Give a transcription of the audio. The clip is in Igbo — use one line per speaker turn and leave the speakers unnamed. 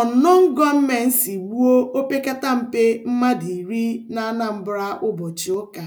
Ọnọnụ gọọmentị gbuo mpe mmadụ iri na Anambra ụbọchị ụka.